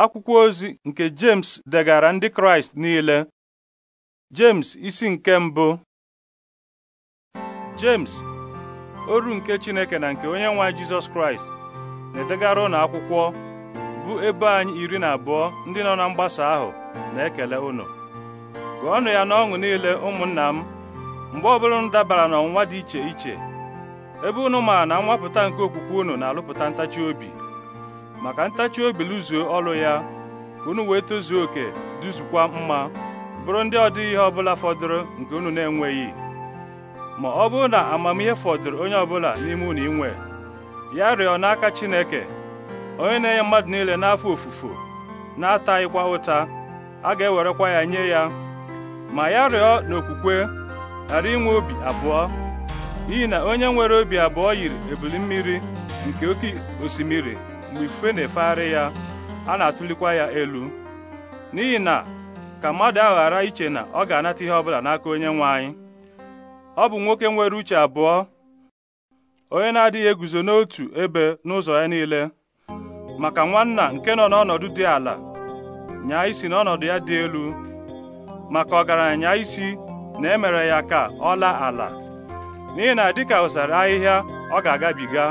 akwụkwọ ozi nke James degara ndị Kraịst niile James isi nke mbụ James oru nke Chineke na nke onye nwe jesus Jizọs Kraịst na-edegara ụnụ akwụkwọ bụ ebe anyị iri na abụọ ndị nọ na mgbasa ahụ na-ekele ụnụ gụọnụ ya n'ọṅụ niile ụmụnna m mgbe ọbụla unu dabara n'ọnwa dị iche iche ebe ụnụ ma na mwapụta nke okwukwe ụnụ na-alụpụta ntachi obi maka ntachi obi lụzuo ọrụ ya ka unu wee tozuo oke duzukwa mma bụrụ ndị ọ ihe ọbụla fọdụrụ nke unu na-enweghị ma ọ bụrụ na amamihe fọdụrụ onye ọbụla n'ime unu inwe ya rịọ n'aka Chineke onye na-enye mmadụ niile n'afọ ofufo na-ataghịkwa ụta a ga-ewerekwa ya nye ya ma ya rịọ n'okwukwe ghara inwe obi abụọ n'ihi na onye nwere obi abụọ yiri ebili mmiri nke oke osimiri mgbe ifufe na-efegharị ya a na-atụlikwa ya elu n'ihi na ka mmadụ ahụ ghara iche na ọ ga-anata ihe ọbụla n'aka onye nwe anyị ọ bụ nwoke nwere uche abụọ onye na-adịghị eguzo n'otu ebe n'ụzọ ya niile maka nwanna nke nọ n'ọnọdụ dị ala nyaa isi n'ọnọdụ ya dị elu maka ọgaranya isi na emere ya ka ọ laa ala n'ihi na dịka ụsara ahịhịa ọ ga-agabiga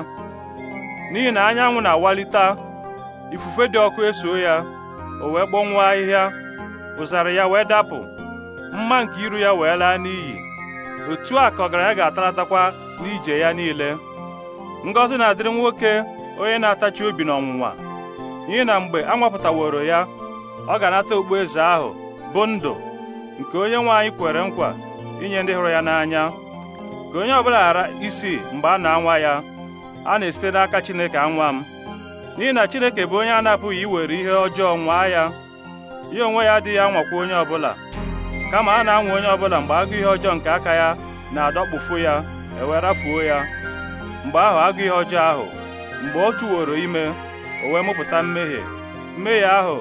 n'ihi na anyanwụ na-awalite ifufe dị ọkụ eso ya o wee kpọnwụọ ahịhịa ụzara ya wee dapụ mma nke iru ya wee laa n'iyi otu a ka ọgaranya ga-atalatakwa n'ije ya niile ngọzi na-adịrị nwoke onye na-atachi obi n'ọnwụnwa n'ihi na mgbe a nwapụtaworo ya ọ ga-anata eze ahụ bụ ndụ nke onye nwe anyị kwere nkwa inye ndị hụrụ ya n'anya ka onye ọbụla ghara isi mgbe a na-anwa ya a na-esite n'aka Chineke anwa m n'ihi na Chineke bụ onye a na-apụghị iwere ihe ọjọọ nwaa ya ya onwe ya adịghị anwakwa onye ọbụla kama a na-anwa onye ọbụla mgbe agụ ihe ọjọọ nke aka ya na-adọkpụfu ya ewerafuo ya mgbe ahụ agụ ihe ọjọọ ahụ mgbe ọ tụworo ime o wee mụpụta mmehie mmehie ahụ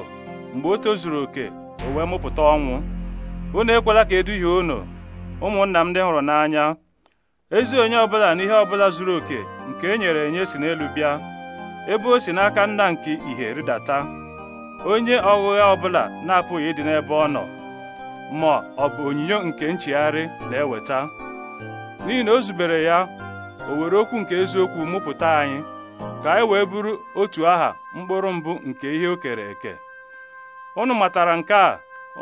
mgbe o tozuru oke o wee mụpụta ọnwụ unu ekwela ka eduhie unu ụmụnna m ndị hụrụ n'anya ezi onye ọbụla na ihe ọbụla zuru oke nke e nyere enye si n'elu bịa ebe o si n'aka nna nke ihe rịdata onye ọghụgha ọbụla na-apụghị ịdị n'ebe ọ nọ ma ọ bụ onyinyo nke nchigharị na-eweta n'ihi na o zubere ya o were okwu nke eziokwu mụpụta anyị ka anyị wee bụrụ otu aha mkpụrụ mbụ nke ihe o kere eke unu matara nke a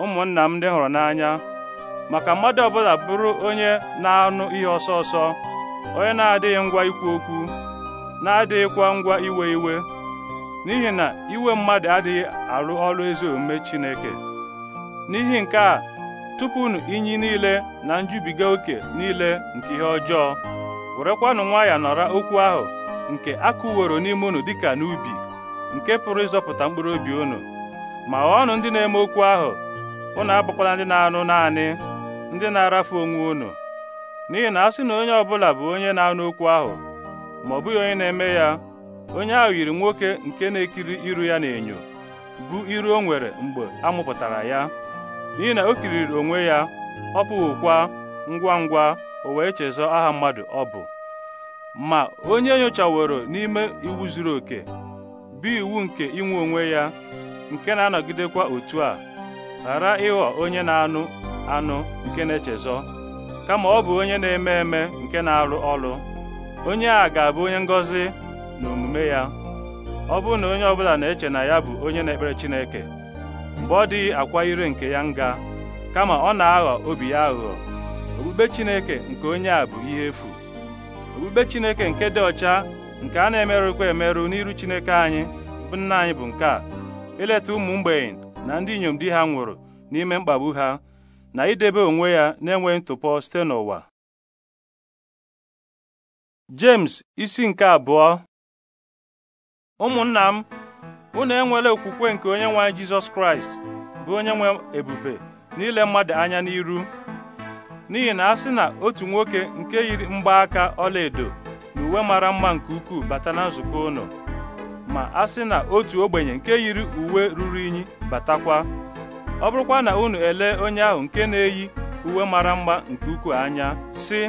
ụmụnna m ndị hụrụ n'anya maka mmadụ ọbụla bụrụ onye na-anụ ihe ọsọ ọsọ onye na-adịghị ngwa ikwu okwu na-adịghịkwa ngwa iwe iwe n'ihi na iwe mmadụ adịghị arụ ọrụ ezi omume Chineke n'ihi nke a tupu tụpụnụ inyi niile na njubiga oke niile nke ihe ọjọọ werekwanụ ya nọrọ okwu ahụ nke akụworo n'ime unu dịka n'ubi nke pụrụ ịzọpụta mkpụrụ obi unu ma ghọọnụ ndị na-eme okwu ahụ ụnụ abụkwala ndị na-anụ naanị ndị na-arafu onwe unu n'ihi na a sị na onye ọbụla bụ onye na-anụ okwu ahụ ma ọ bụghị onye na-eme ya onye ahụ yiri nwoke nke na-ekiri iru ya n'enyo bụ iru o nwere mgbe a mụpụtara ya n'ihi na o kiriri onwe ya ọ pụghịkwa ngwa ngwa o wee chezọ aha mmadụ ọ bụ ma onye nyochaworo n'ime iwu zuru oke bụ iwu nke inwe onwe ya nke na-anọgidekwa otu a ghara ịghọ onye na-anụ anụ nke na-echezọ kama ọ bụ onye na-eme eme nke na-arụ ọrụ onye a ga-abụ onye ngọzi na omume ya ọ bụrụ na onye ọbụla na-eche na ya bụ onye na-ekpere Chineke mgbe ọ dịghị akwa ire nke ya nga kama ọ na-aghọ obi ya aghụghọ okpukpe Chineke nke onye a bụ ihe efu okpukpe Chineke nke dị ọcha nke a na-emerụkwa emerụ n'iru Chineke anyị bụ nna anyị bụ nke a ileta ụmụ mgbei na ndị inyom di ha nwụrụ n'ime mkpagbu ha na idebe onwe ya na-enweghị ntụpọ site n'ụwa James isi nke abụọ ụmụnna m unu enwela okwukwe nke onye nwe anyị Jizọs Kraịst bụ onye nwe ebube n'ile mmadụ anya n'iru n'ihi na a sị na otu nwoke nke yiri mgbaaka ọlaedo na uwe mara mma nke ukwuu bata na nzukọ ụnụ ma a sị na otu ogbenye nke yiri uwe ruru unyi batakwa ọ bụrụkwa na unu elee onye ahụ nke na-eyi uwe mara mma nke ukwuu anya sị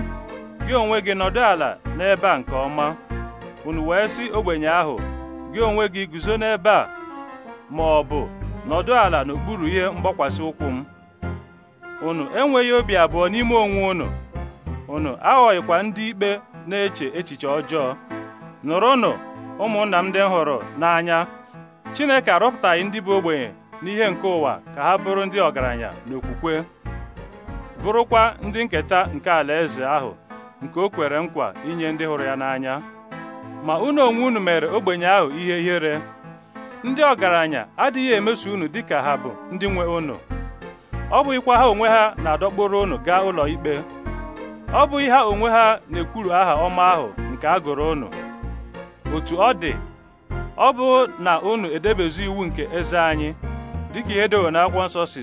gị onwe gị nọdụ ala n'ebe a nke ọma unu wee sị ogbenye ahụ gị onwe gị guzo n'ebe a ma ọ bụ nọdụ ala n'okpuru ihe mgbakwasị ụkwụ m unu enweghị obi abụọ n'ime onwe unu unu aghọghịkwa ndị ikpe na-eche echiche ọjọọ nụrụnụ ụmụnna m ndị hụrụ n'anya Chineke arọpụtaghị ndị bụ ogbenye n'ihe nke ụwa ka ha bụrụ ndị ọgaranya n'okwukwe bụrụkwa ndị nketa nke alaeze ahụ nke o kwere nkwa inye ndị hụrụ ya n'anya ma unu onwe unu mere ogbenye ahụ ihe ihere ndị ọgaranya adịghị emeso unu dịka ha bụ ndị nwe unu ọ bụghịkwa ha onwe ha na-adọkpụrụ unu gaa ụlọ ikpe ọ bụghị ha onwe ha na-ekwuru aha ọma ahụ nke a gụrụ unu otu ọ dị ọ bụ na unu edebezi iwu nke eze anyị dịka ihe na n'akwụkwọ nsọ si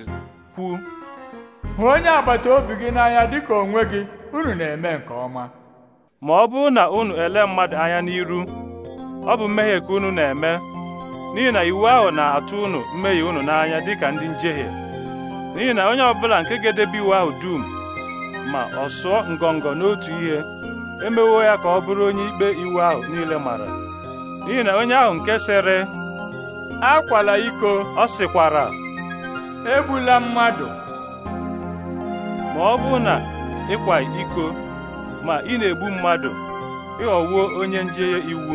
kwuo hụ onye agbata obi gị n'anya dịka onwe gị unu na-eme nke ọma ma ọ bụrụ na unu ele mmadụ anya n'iru ọ bụ mmehie ka unu na-eme n'ihi na iwu ahụ na-atụ unu mmehie unu n'anya dịka ndị njehie n'ihi na onye ọbụla nke ga-edebe iwu ahụ dum ma ọ sụọ ngọngọ n'otu ihe emewo ya ka ọ bụrụ onye ikpe iwu ahụ niile mara n'ihi na onye ahụ nke sere akwala iko ọ sịkwara egbula mmadụ ma ọ bụ na ịkwa iko ma ị na-egbu mmadụ ịghọwuo onye njehie iwu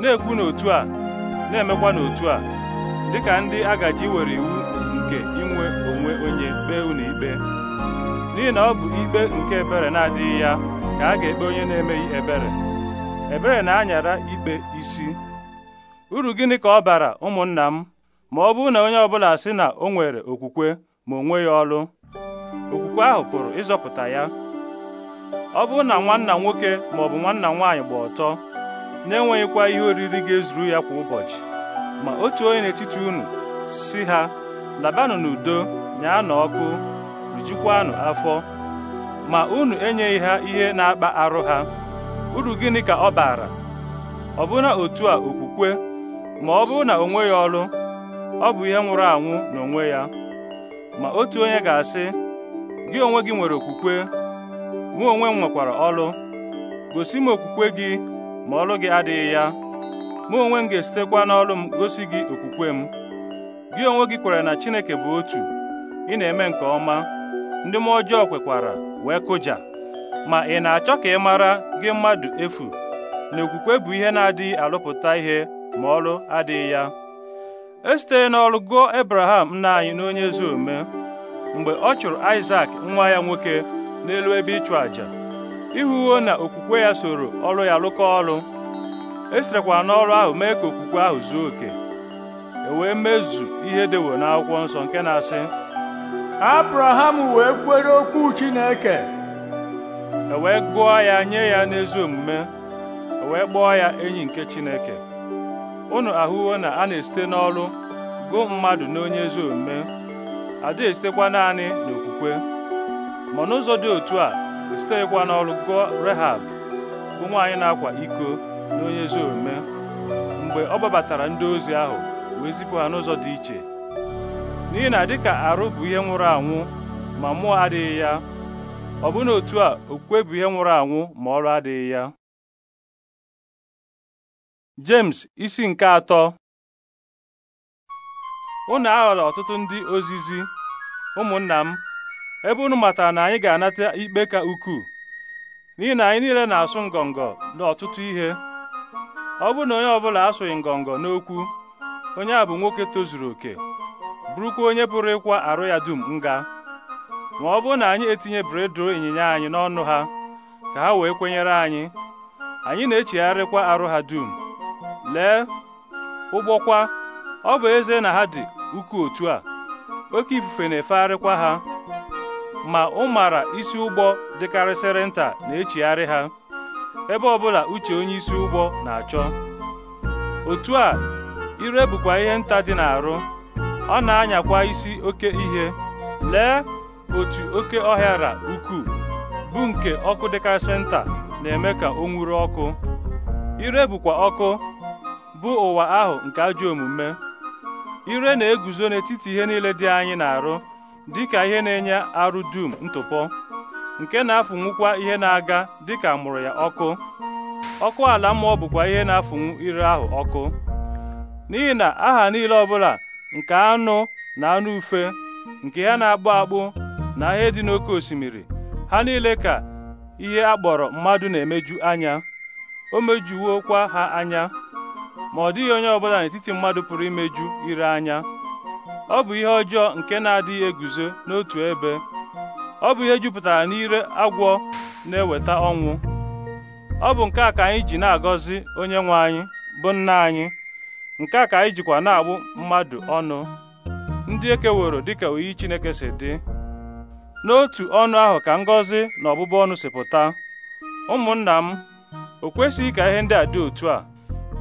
na-ekwu n'otu a na-emekwa n'otu a dịka ndị agaji were iwu nke inwe onwe onye kpee unu ikpe n'ihi na ọ bụ ikpe nke ebere na-adịghị ya ka a ga-ekpe onye na-emeghị ebere ebere na-anyara ikpe isi uru gịnị ka ọ bara ụmụnna m ma ọ bụrụ na onye ọbụla sị na o nwere okwukwe ma o nweghị ọlụ okwukwe ahụ pụrụ ịzọpụta ya ọ bụrụ na nwanna nwoke ma ọ bụ nwanna nwaanyị gba ọtọ na-enweghịkwa ihe oriri ga-ezuru ya kwa ụbọchị ma otu onye n'etiti unu si ha labanụ n'udo na ọkụ rijikwanụ afọ ma unu enyeghị ha ihe na-akpa arụ ha uru gịnị ka ọ bara ọ ọbụna otu a okwukwe ma ọ bụrụ na o nweghị ọlụ ọ bụ ihe nwụrụ anwụ n'onwe ya ma otu onye ga-asị gị onwe gị nwere okwukwe mụ onwe m nwekwara ọlụ gosi m okwukwe gị ma ọlụ gị adịghị ya mụ onwe m ga-esitekwa n'ọlụ m gosi gị okwukwe m gị onwe gị kwere na Chineke bụ otu ị na-eme nke ọma ndị m ọjọọ kwekwara wee kụja ma ị na-achọ ka ị mara gị mmadụ efu na okwukwe bụ ihe na-adịghị alụpụta ihe ma ọrụ adịghị ya esite n'ọrụ gụọ Abraham nna anyị n'onye ezi omume mgbe ọ chụrụ Isak nwa ya nwoke n'elu ebe ịchụ àjà ihuwo na okwukwe ya soro ọrụ ya lụkọ ọlụ esiterekwa n'ọrụ ahụ mee ka okwukwe ahụ zuo oke e wee mezu ihe dewo n'akwụkwọ nsọ nke na-asị Abraham wee kwere okwu Chineke e wee gụọ ya nye ya n'ezi omume e wee kpọọ ya enyi nke Chineke unu ahụwo na a na-esite n'ọrụ gụọ mmadụ n'onye ezi omume ada esitekwa naanị n'okwukwe ma n'ụzọ dị otu a esitekwa n'ọrụ gụọ Rehab bụ nwaanyị na-akwa iko n'onye ezi omume mgbe ọ gbabatara ndị ozi ahụ wee zipụ ha n'ụzọ dị iche n'ihi na dịka arụ bụ ihe nwụrụ anwụ ma mmụọ adịghị ya ọ bụ na otu a okwukwe bụ ihe nwụrụ anwụ ma ọrụ adịghị ya James isi nke atọ unu aghọrọ ọtụtụ ndị ozizi ụmụnna m ebe unu matara na anyị ga-anata ikpe ka ukwuu n'ihi na anyị niile na-asụ ngọngọ n'ọtụtụ ihe ọ bụrụ na onye ọbụla asụghị ngọngọ n'okwu onye a bụ nwoke tozuru oke bụrụkwa onye pụrụ ịkwa arụ ya dum nga ma ọ bụrụ na anyị etinye bredro ịnyịnya anyị n'ọnụ ha ka ha wee kwenyere anyị anyị na-echegharịkwa arụ ha dum lee ụgbọkwa ọ bụ eze na ha dị ukwu otu a oke ifufe na-efegharịkwa ha ma ụmara isi ụgbọ dịkarịsịrị nta na-echigharị ha ebe ọbụla uche onye isi ụgbọ na-achọ otu a ire bụkwa ihe nta dị n'arụ ọ na-anyakwa isi oke ihe lee otu oke ọhịara ukwuu bụ nke ọkụ dịkarịsịrị nta na-eme ka o nwuru ọkụ ire bụkwa ọkụ bụ ụwa ahụ nke ajọ omume ire na-eguzo n'etiti ihe niile dị anyị na-arụ dịka ihe na-enye arụ dum ntụpọ nke na-afụnwukwa ihe na-aga dịka mụrụ ya ọkụ ọkụ ala mmụọ bụkwa ihe na-afụnwu ire ahụ ọkụ n'ihi na aha niile ọbụla nke anụ na anụ ufe nke ya na-akpụ akpụ na ihe dị n'oké osimiri ha niile ka ihe a kpọrọ mmadụ na-emeju anya o mejuwokwa ha anya ma ọ dịghị onye ọbụla n'etiti mmadụ pụrụ imeju ire anya ọ bụ ihe ọjọọ nke na-adịghị eguzo n'otu ebe ọ bụ ihe jupụtara n'ire agwọ na-eweta ọnwụ ọ bụ nke a ka anyị ji na-agọzi onye nwe anyị bụ nna anyị nke a ka anyị jikwa na-agbụ mmadụ ọnụ ndị ekeworo dịka oyi Chineke si dị n'otu ọnụ ahụ ka ngọzi na ọbụbụ ọnụ si pụta ụmụnna m o kwesịghị ka ihe ndị a dị otu a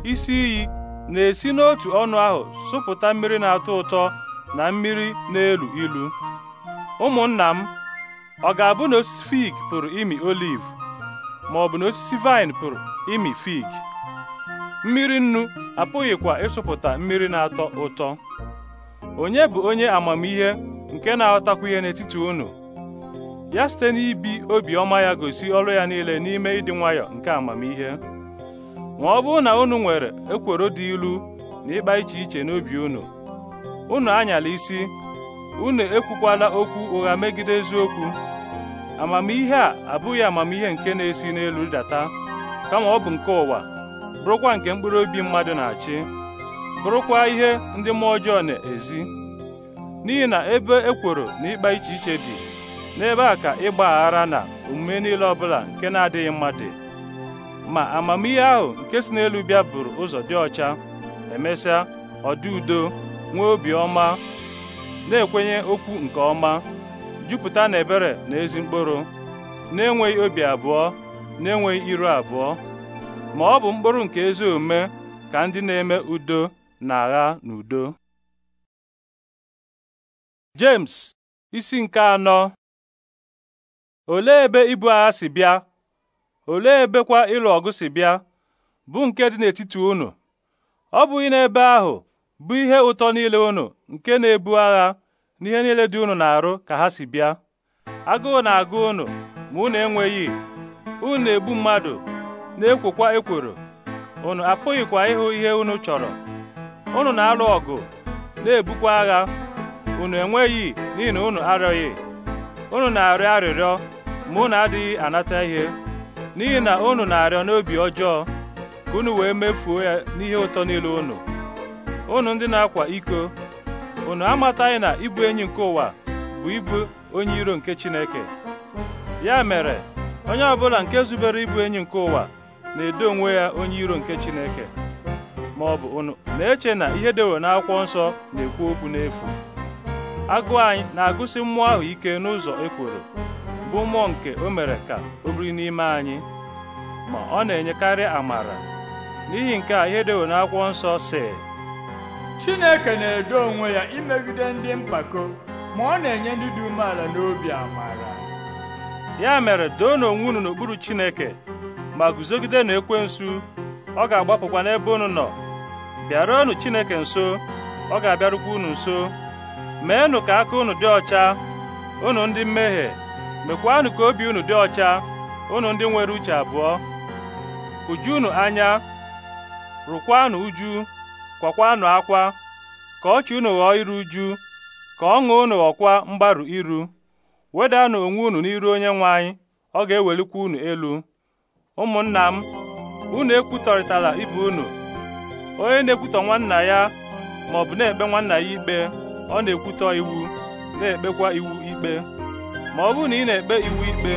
isi iyi na-esi n'otu ọnụ ahụ sụpụta mmiri na-atọ ụtọ na mmiri na-elu ilu ụmụnna m ọ ga-abụ na osisi fig pụrụ imi oliv ma ọ bụ na osisi vaịn pụrụ imi fig mmiri nnu apụghịkwa ịsụpụta mmiri na-atọ ụtọ onye bụ onye amamihe nke na-aghọtakwa ihe n'etiti unu ya site n'ibi obiọma ya gosi ọrụ ya niile n'ime ịdị nwayọ nke amamihe ma ọ bụrụ na unu nwere ekworo dị ilu na ịkpa iche iche n'obi unu unu anyala isi unu ekwukwala okwu ụgha megide eziokwu amamihe a abụghị amamihe nke na-esi n'elu data kama ọ bụ nke ụwa bụrụkwa nke mkpụrụ obi mmadụ na-achị bụrụkwa ihe ndị mmụọ ọjọọ na-ezi n'ihi na ebe ekworo na ịkpa iche iche dị n'ebe a ka ịgba aghara na omume niile ọbụla nke na-adịghị mma dị ma amamihe ahụ nke si n'elu bịa buru ụzọ dị ọcha emesịa ọdị udo nwee obi ọma na-ekwenye okwu nke ọma jupụta na ebere na ezi mkpụrụ na-enweghị obi abụọ na-enweghị iru abụọ ma ọ bụ mkpụrụ nke ezi omume ka ndị na-eme udo na-agha n'udo James isi nke anọ olee ebe ibu agha si bịa olee ebekwa ịlụ ọgụ si bịa bụ nke dị n'etiti unu ọ bụghị n'ebe ahụ bụ ihe ụtọ niile unu nke na-ebu agha n'ihe niile dị unu na-arụ ka ha si bịa agụụ na-agụ unu ma unu enweghị unu na-egbu mmadụ na-ekwokwa ekworo unu apụghịkwa ịhụ ihe unu chọrọ unu na-alụ ọgụ na-ebukwa agha unu enweghị n'ihi na unu arịọghị unu na-arịọ arịrịọ ma unu adịghị anata ihe n'ihi na unu na-arịọ n'obi ọjọọ ka unu wee mefuo ya n'ihe ụtọ niile unu unu ndị na-akwa iko unu amataghị na ịbụ enyi nke ụwa bụ ịbụ onye iro nke Chineke ya mere onye ọbụla nke zubere ịbụ enyi nke ụwa na-edo onwe ya onye iro nke Chineke ma ọ bụ unu na-eche na ihe na n'akwụkwọ nsọ na-ekwu okwu n'efu agụụ anyị na-agụsi mmụọ ahụ ike n'ụzọ ekworo bụ mmụọ nke o mere ka o biri n'ime anyị ma ọ na-enyekarị amara n'ihi nke a ihe dewo n'akwụkwọ nsọ si Chineke na-edo onwe ya imegide ndị mpako ma ọ na-enye ndị dị umeala n'obi amara ya mere doo n'onwe unu n'okpuru Chineke ma guzogide na ekwensu ọ ga-agbapụkwa n'ebe unu nọ bịaruonu Chineke nso ọ ga-abịarukwa unu nso meenụ ka aka unu dị ọcha unu ndị mmehie mekwanụ ka obi unu dị ọcha unu ndị nwere uche abụọ unu anya rụkwanụ uju kwakwanụ akwa ka ọchị unu ghọọ iru uju ka ọṅụ unu ghọkwa mgbarụ iru wedanụ onwe unu n'iru onye nwe anyị ọ ga-ewelikwa unu elu ụmụnna m unu ekwutọrịtala ibe unu onye na-ekwutọ nwanna ya maọbụ na-ekpe nwanna ya ikpe ọ na-ekwutọ iwu na-ekpekwa iwu ikpe ma ọ bụrụ na ị na-ekpe iwu ikpe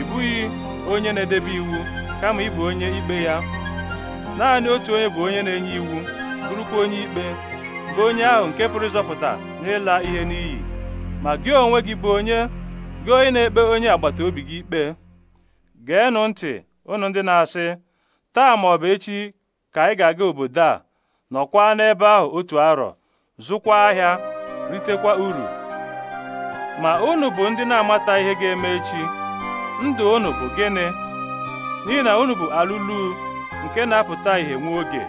ị bụghị onye na-edebe iwu kama ị bụ onye ikpe ya naanị otu onye bụ onye na-enye iwu bụrụkwa onye ikpe bụ onye ahụ nke pụrụ ịzọpụta n'ịla ihe n'iyi ma gị onwe gị bụ onye gị onye na-ekpe onye agbata obi gị ikpe geenụ ntị ụnụ ndị na-asị taa ma ọ bụ echi ka anyị ga-aga obodo a nọkwa n'ebe ahụ otu arọ zụkwa ahịa ritekwa uru ma unu bụ ndị na-amata ihe ga-eme echi ndụ unu bụ gịnị n'ihi na unu bụ alụlu nke na-apụta ihe nwa oge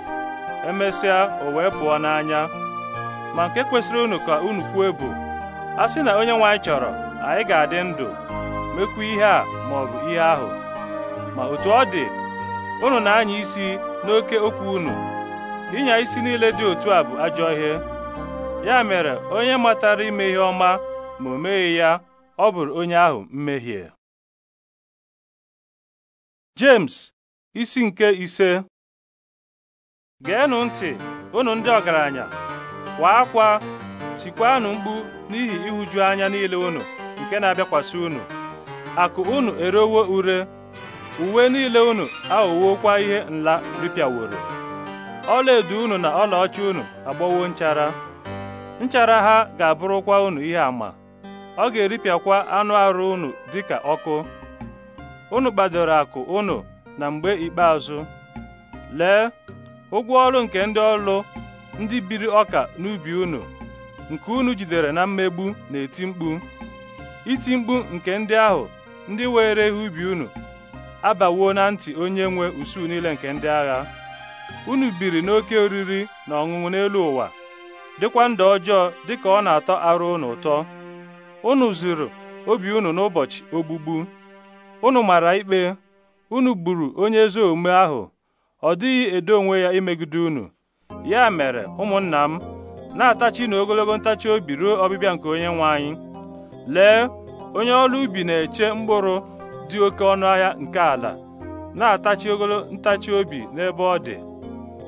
emesịa o wee pụọ n'anya ma nke kwesịrị unu ka unu kwuo bụ a sị na onye nwaanyị chọrọ anyị ga-adị ndụ mekwu ihe a ma ọ bụ ihe ahụ ma otu ọ dị unu na-anya isi n'oke okwu unu ịnya isi niile dị otu a bụ ajọ ihe ya mere onye matara ime ihe ọma ma o meghị ya ọ bụrụ onye ahụ mmehie James isi nke ise geenụ ntị unu ndị ọgaranya kwa akwa tikwanụ mkpu n'ihi ịhụju anya niile unu nke na-abịakwasị unu akụ unu erewo ure uwe niile unu aghọwokwa ihe nla ripịaworo ọlaedo unu na ọlaọcha unu agbọwo nchara nchara ha ga-abụrụkwa unu ihe ama ọ ga-eripịakwa anụ arụ unu dịka ọkụ unu kpadoro akụ unu na mgbe ikpeazụ lee ụgwọ ọrụ nke ndị ọrụ ndị biri ọka n'ubi unu nke unu jidere na mmegbu na-eti mkpu iti mkpu nke ndị ahụ ndị were ihe ubi unu abawo na ntị onye nwe usuu niile nke ndị agha unu biri n'oke oriri na ọṅụṅụ n'elu ụwa dịkwa ndụ ọjọọ dịka ọ na-atọ arụ unu ụtọ unu zuru obi unu n'ụbọchị ogbugbu unu mara ikpe unu gburu onye ezi omume ahụ ọ dịghị edo onwe ya imegide unu ya mere ụmụnna m na-atachi na ogologo ntachi obi ruo ọbịbịa nke onye nwe anyị lee onye ọrụ ubi na-eche mkpụrụ dị oke ọnụ ahịa nke ala na-atachi ogologo ntachi obi n'ebe ọ dị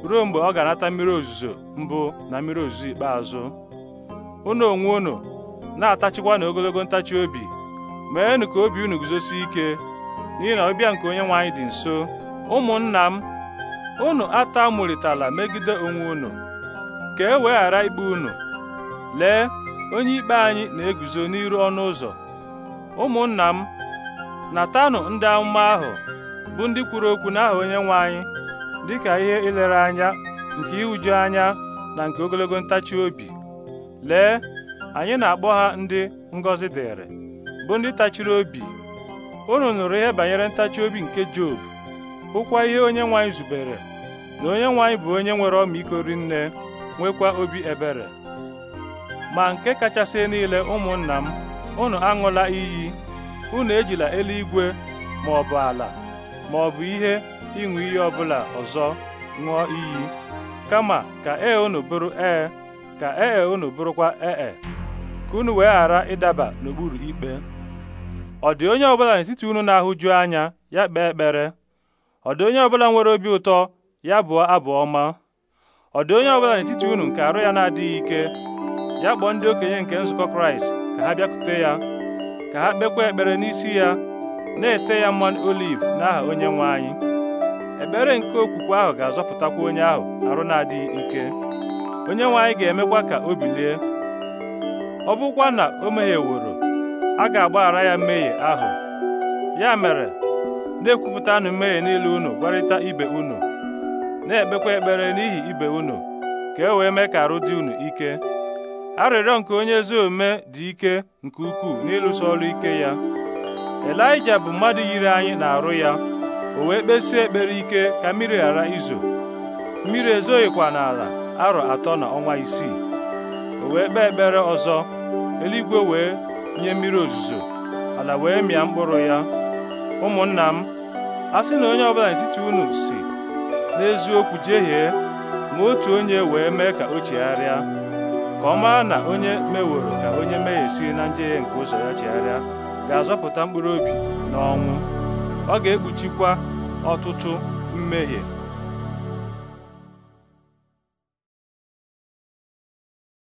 ruo mgbe ọ ga-anata mmiri ozuzo mbụ na mmiri ozuzo ikpeazụ unu onwe unu na-atachikwa na ogologo ntachi obi meenụ ka obi unu guzosie ike n'ihi na ọbịa nke onye nwe anyị dị nso ụmụnna m unu atamụrịtala megide onwe unu ka e wee ghara ikpe unu lee onye ikpe anyị na-eguzo n'iru ọnụ ụzọ ụmụnna m natanụ ndị amụma ahụ bụ ndị kwuru okwu n'aha onye nwe anyị dịka ihe ilere anya nke ịhụju anya na nke ogologo ntachi obi lee anyị na-akpọ ha ndị ngọzi dịrị bụ ndị tachiri obi unu nụrụ ihe banyere ntachi obi nke Job hụkwa ihe onye nwanyị zubere na onye nwanyị bụ onye nwere ọmịiko rinne nwekwa obi ebere ma nke kachasị niile ụmụnna m unu aṅụla iyi unu ejila eluigwe ma ọ bụ ala ma ọ bụ ihe ịṅụ iyi ọbụla ọzọ ṅụọ iyi kama ka ee unu bụrụ ee ka ee e unu bụrụkwa ee e. ka unu wee ghara ịdaba n'okpuru ikpe ọ dị onye ọbụla n'etiti unu na-ahụju anya ya kpee ekpere ọ dị onye ọbụla nwere obi ụtọ ya bụọ abụ ọma ọ dị onye ọbụla n'etiti unu nke arụ ya na-adịghị ike ya kpọọ ndị okenye nke nzukọ kraịst ka ha bịakwute ya ka ha kpekwa ekpere n'isi ya na-ete ya mmanụ oliv n'aha onye nwe anyị ekpere nke okwukwe ahụ ga-azọpụtakwa onye ahụ arụ na-adịghị ike onye nwe anyị ga-emekwa ka o bilie ọ bụkwa na o mehieworo a ga-agbaghara ya mmehie ahụ ya mere na-ekwupụtanụ mmehie niile unu gwarịta ibe unu na-ekpekwa ekpere n'ihi ibe unu ka e wee mee ka arụ dị unu ike arịrịọ nke onye ezi omume dị ike nke ukwuu n'ịlụso ọrụ ike ya Elaija bụ mmadụ yiri anyị na-arụ ya o wee kpesie ekpere ike ka mmiri ghara izo mmiri ezoghịkwa n'ala arọ atọ na ọnwa isii wee kpee ekpere ọzọ eluigwe wee nye mmiri ozuzo ala wee mịa mkpụrụ ya ụmụnna m a sị na onye ọbụla n'etiti unu si n'eziokwu jehie ma otu onye wee mee ka o chegharịa ka ọ maa na onye meworo ka onye mehie si na njehie nke ụzọ ya chegharịa ga-azọpụta mkpụrụ obi n'ọnwụ ọ ga-ekpuchikwa ọtụtụ mmehie